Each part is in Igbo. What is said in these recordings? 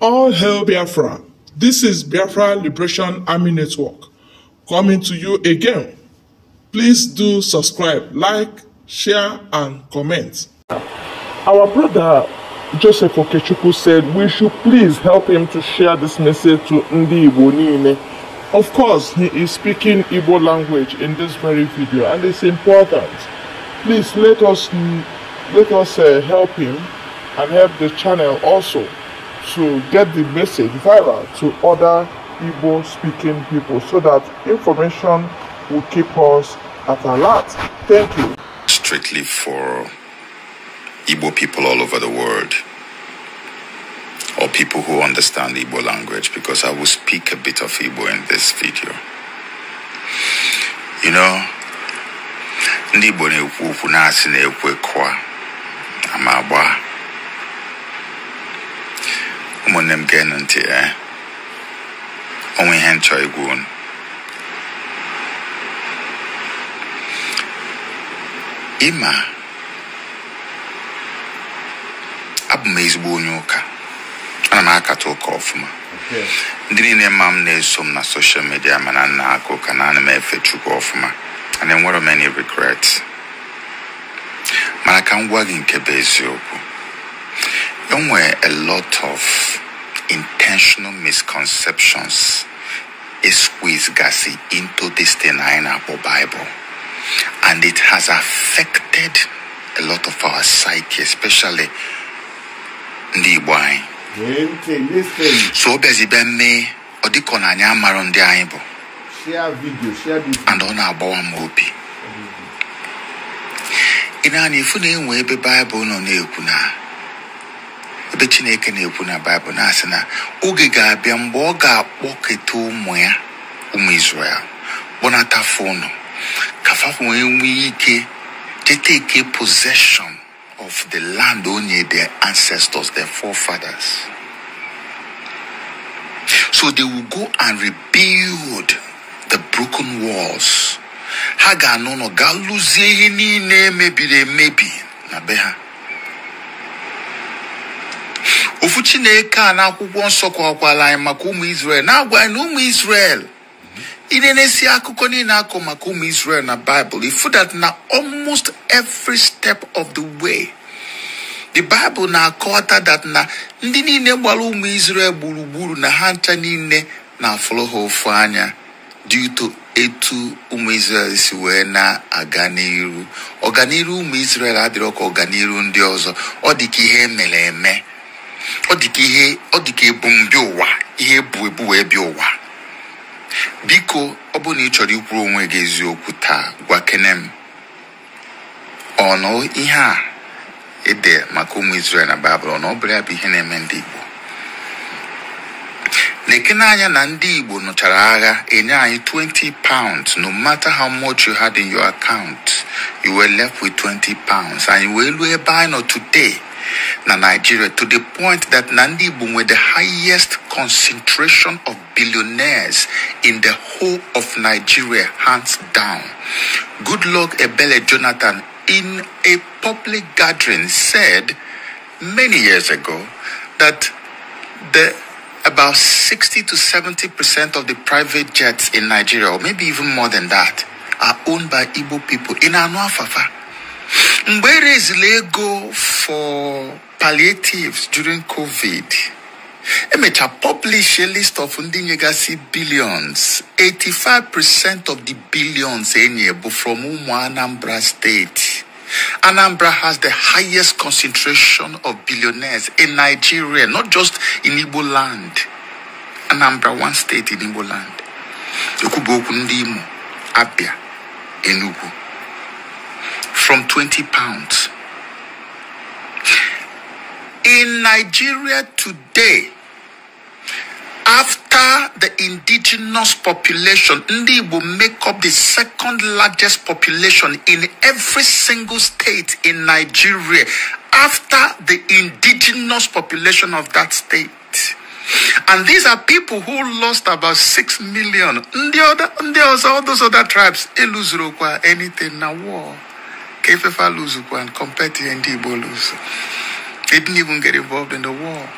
All hail Biafra. This is Biafra Liberation Army Network coming to you again. Please do subscribe, like, share, and comment. Our brother Joseph Okechukwu said we should please help him to share this message to Ndi Igbo Of course, he is speaking Igbo language in this very video and it's important. Please let us, let us uh, help him and help the channel also to get the message viral to other Igbo speaking people so that information will keep us at alert. Thank you. Strictly for Igbo people all over the world or people who understand Igbo language because I will speak a bit of Igbo in this video. You know, ndị Igbo na-ekwu na-asị ekwe kwa ụmụnne m ga-enụ ntị eh, onwe ihe nchọ igwu ịma abụ m ezigbo onye ụka ana m akata ụka ọfụma ndị niile ma m na-eso m na soshal midia mana nna aka ụka na ana m efe chukwu ọfụma and enwere many regrets mana ka m gwa gị nke bụ eziokwu There were a lot of intentional misconceptions it squeezed gassy into this denying Apple Bible. And it has affected a lot of our psyche, especially the Igbo So bezi be mme ọ dịka aibo. Share video, share video, And ọ na-agbawa m obi. Mm. Ị na-ana ifu nọ na-ekwu ebe chineke na-ekwu na baịbụl na-asị na oge ga-abịa mgbe ọ ga-akpọketa ụmụ ya ụmụ Izrel kpọnatafe ụnụ ka fa wee nwee ike teteke possession of the land onye their ancestors their forefathers so they will go and rebuild the broken walls ha ga-anọ nọ gaa lụzie ihe niile mebiri emebi na be ha ofu chineke a n'akwụkwọ nsọ kwakwara anyị maka ụmụ Israel na-agwa anyị na ụmụ Israel ịna-enesi akụkọ niile akọ maka ụmụ Israel na Bible ifu na almost every step of the way the Bible na-akọwata that na ndị niile gbara ụmụ Israel gburugburu na ha ncha niile na-afụrụ ha ofu anya due to etu ụmụ Israel si wee na-aga n'iru ọganiru ụmụ Israel adịrọ ka ọganiru ndị ọzọ ọ dị ka ihe emere eme ọ dịka ihe ọ dịka ebumbi ụwa ihe ebu ebu wee bịa ụwa biko ọ bụ na ị chọrọ ikwuru onwe gị eziokwu taa gwa kene m ọnụ ihe a ede maka ụmụ Izrel na Baịbụl ọnụ ọ bụrụ ya bụ ihe na-eme ndị Igbo na-ekene anya na ndị Igbo nụchara agha enye anyị 20 pounds no matter how much you had in your account you were left with 20 pounds anyị wee luo ebe anyị nọ today Nigeria to the point that Nandibu were the highest concentration of billionaires in the whole of Nigeria, hands down. Goodluck Ebele Jonathan, in a public gathering, said many years ago that the about 60 to 70 percent of the private jets in Nigeria, or maybe even more than that, are owned by Igbo people in Anuafafa. Where is Lego for palliatives during covid emecha publish a list of ndị billions 85% of the billions are from anambra State. Anambra has the highest concentration of billionaires in Nigeria, not just in Igbo land. Anambra, one state in Igbo land. Okubo Okundimo, Abia, Enugu from 20 pounds. In Nigeria today, after the indigenous population, Ndi will make up the second largest population in every single state in Nigeria after the indigenous population of that state. And these are people who lost about 6 million. Ndi other, Ndi also, all those other tribes, Eluzurokwa, anything, now war. Kefefa Luzukwa and compared to Ndibo They didn't even get involved in the war.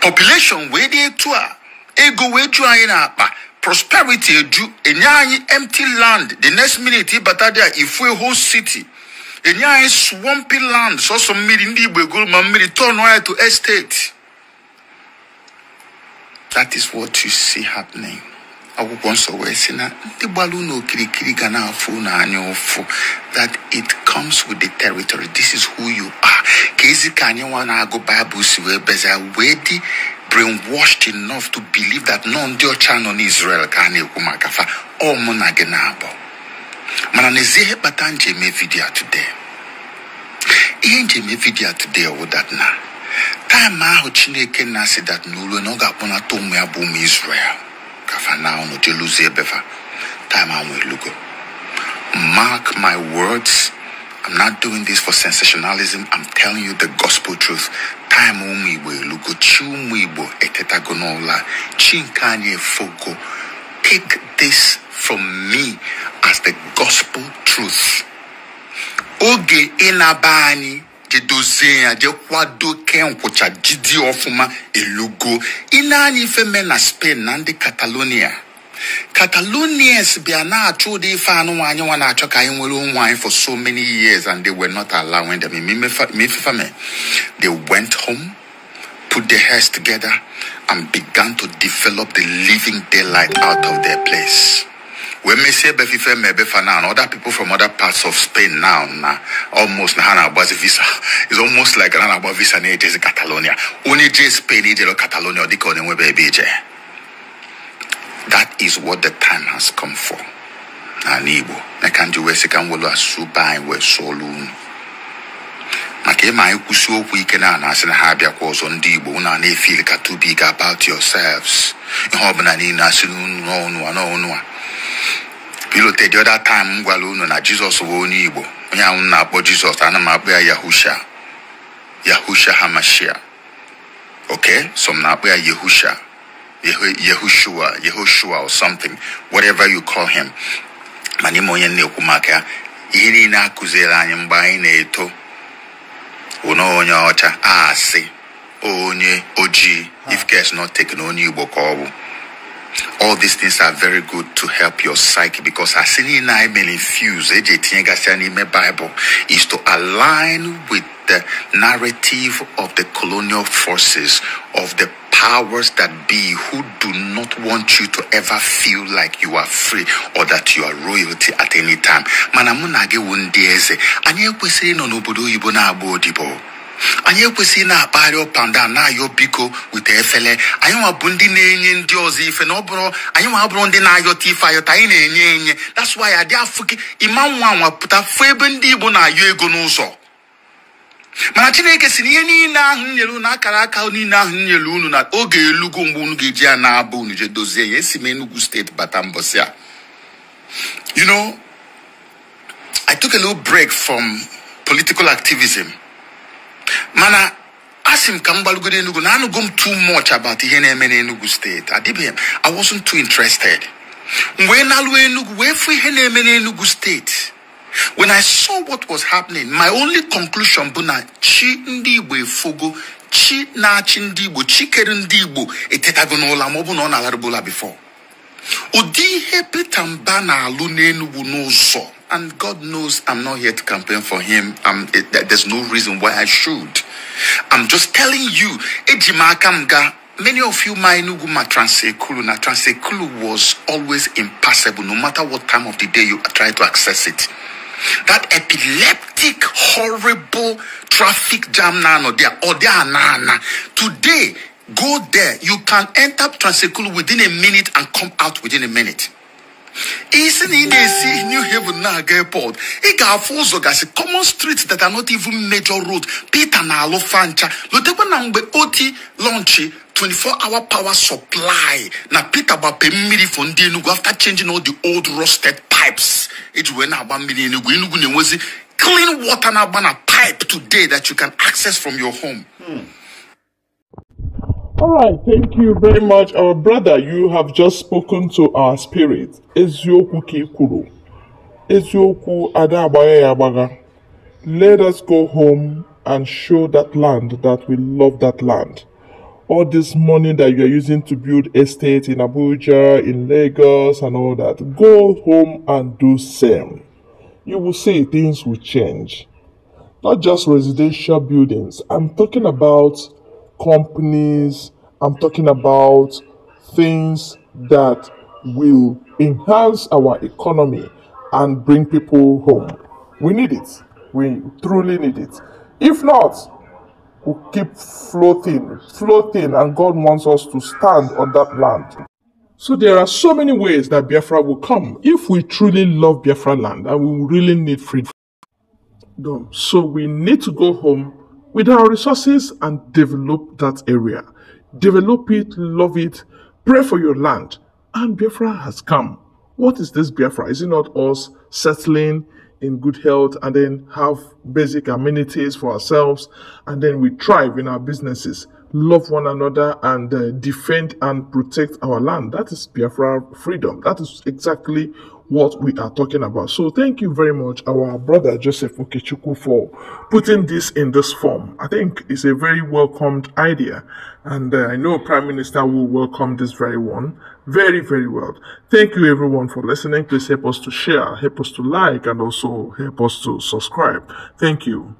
Population where they tour, ego where in our prosperity edu, enyanyi empty land. The next minute, batadia if we whole city. Enyanyi swampy land. So some mid Ndibo go mamiri turn wire to estate. That is what you see happening. akwụkwọ nsọ wee sị na ndị gbara unu okirikiri ga na-afụ unu anya ụfụ that it comes with the territory this is who you are ka ezi ka anyị nwa na-agụ baịbụl si wee beza wee dị brainwashed enough to believe that nọ ndị ọcha nọ n'Israel ka a na-ekwu maka fa ọ mụ na gị na-abụ mana n'ezie ihe kpata nji eme vidio today ihe nji eme vidio today wụ that na taịm ahụ Chineke na-asị dat n'olu na ọ ga-akpọnata ụmụ ya bụ ụmụ Israel Kafana ono teluze befa. Time i Mark my words. I'm not doing this for sensationalism. I'm telling you the gospel truth. Time only will lugo chumuibo etetagonola chinkanye foko. Take this from me as the gospel truth. Oge inabani jidi ọfụma elugo spain catalonia catalonians bịa na-achọ ụdị ife anụnwa anyị nwa na ka for so many years and they were not allowing them mefefame they went home put their heads together and began to develop the living daylight out of their place when me say Befife Mebefa now, other people from other parts of Spain now, now almost Hanaba's visa. It's almost like Hanaba's visa in Catalonia. Only J Spain, Egypt, Catalonia, they call them baby J. That is what the time has come for. N'ala Igbo, na ka ndị wee sị ka m welu asụ be anyị wee sụọlụ unu. Maka ịma anyị kwụsị okwu ike na anasị na ha abịakwa ọzọ ndị Igbo unu too big about yourselves. Ihe ọbụla niile asị n'unu n'ọnụ a n'ọnụ a. ilote the other time m gwara unu na jizọs bụ onye igbo onye ahụ na-akpọ jizọs ana m akpọ ya yahusha yahusha hamashia oke so na-akpọ ya yahushua yehoshua or something whatever you call him mana ime onye na-ekwu maka ya ihe niile akụziere anyị mgbe anyị na-eto onye ocha a si onye ojii if k not taken onye igbo ka ọ bụ all these things are very good to help your psyche because asini may infuse eh, Bible is to align with the narrative of the colonial forces of the powers that be who do not want you to ever feel like you are free or that you are royalty at any time. Mana mụ na gị wụ ndị no anyị na anyị ekwesịghị na-akpagharị ụpanda na-ayọ biko weta efele anyị nwa bụ ndị na-enye ndị ọzọ ife na ọ bụrụ anyị nwa bụrụ ndị na-ayọta ife ayọta anyị na-enye enye that's why adị afụ gị ịma nwa nwa pụta fụ ebe ndị Igbo na-ayọ ego n'ụzọ mana Chineke si na ihe niile ahụ nyere unu akara aka niile ahụ nyere unu na oge elugo mgbe unu ga-eji ya na-abụ unu je dozie ya esi m Enugu steeti bata mbọsị a you know I took a little break from political activism. mana asị m ka m gbalugoro Enugu na anụgo m too much about ihe na-eme n'Enugu steeti adịbeghị m I wasn't too interested wee na Enugu wee fụ ihe na-eme n'Enugu steeti when I saw what was happening my only conclusion bụ na chi ndị Igbo efogo chi na-achị ndị Igbo chi kere ndị Igbo etetago n'ụla ma ọ bụ na ọ na-alarịbụla before ụdị ihe pete Mba na-alụ n'Enugu n'ụzọ And God knows I'm not here to campaign for him. Um, it, there's no reason why I should. I'm just telling you, many of you my nuguma transekulu was always impassable no matter what time of the day you try to access it that epileptic horrible traffic jam nano there or there today go there you can enter transekulu within a minute and come out within a minute is in i new haven na airport i got ga-afụ ụzọ common streets that are not even major road peter na-alụ fancha lotekwa number mgbe oti lọnchi 24 hour power supply Now peter gbape mmiri for ndị enugwu after changing all the old rusted pipes it wee na-agba mmiri enugwu clean water now agba na pipe today that you can access from your home. Hmm. All right, thank you very much, our brother. You have just spoken to our spirit. Eziokwu ka ikwuru. Eziokwu ada ya Let us go home and show that land that we love that land. All this money that you are using to build estates in Abuja, in Lagos, and all that, go home and do same. You will see things will change. Not just residential buildings. I'm talking about companies, I'm talking about things that will enhance our economy and bring people home. We need it. We truly need it. If not, we will keep floating, floating, and God wants us to stand on that land. So there are so many ways that Biafra will come if we truly love Biafra land and we really need freedom. So we need to go home with our resources and develop that area. Develop it, love it, pray for your land. And Biafra has come. What is this Biafra? Is it not us settling in good health and then have basic amenities for ourselves and then we thrive in our businesses, love one another and uh, defend and protect our land? That is Biafra freedom. That is exactly what we are talking about. So thank you very much, our brother Joseph Okechuku, for putting this in this form. I think it's a very welcomed idea, and uh, I know Prime Minister will welcome this very one very, very well. Thank you everyone for listening. Please help us to share, help us to like, and also help us to subscribe. Thank you.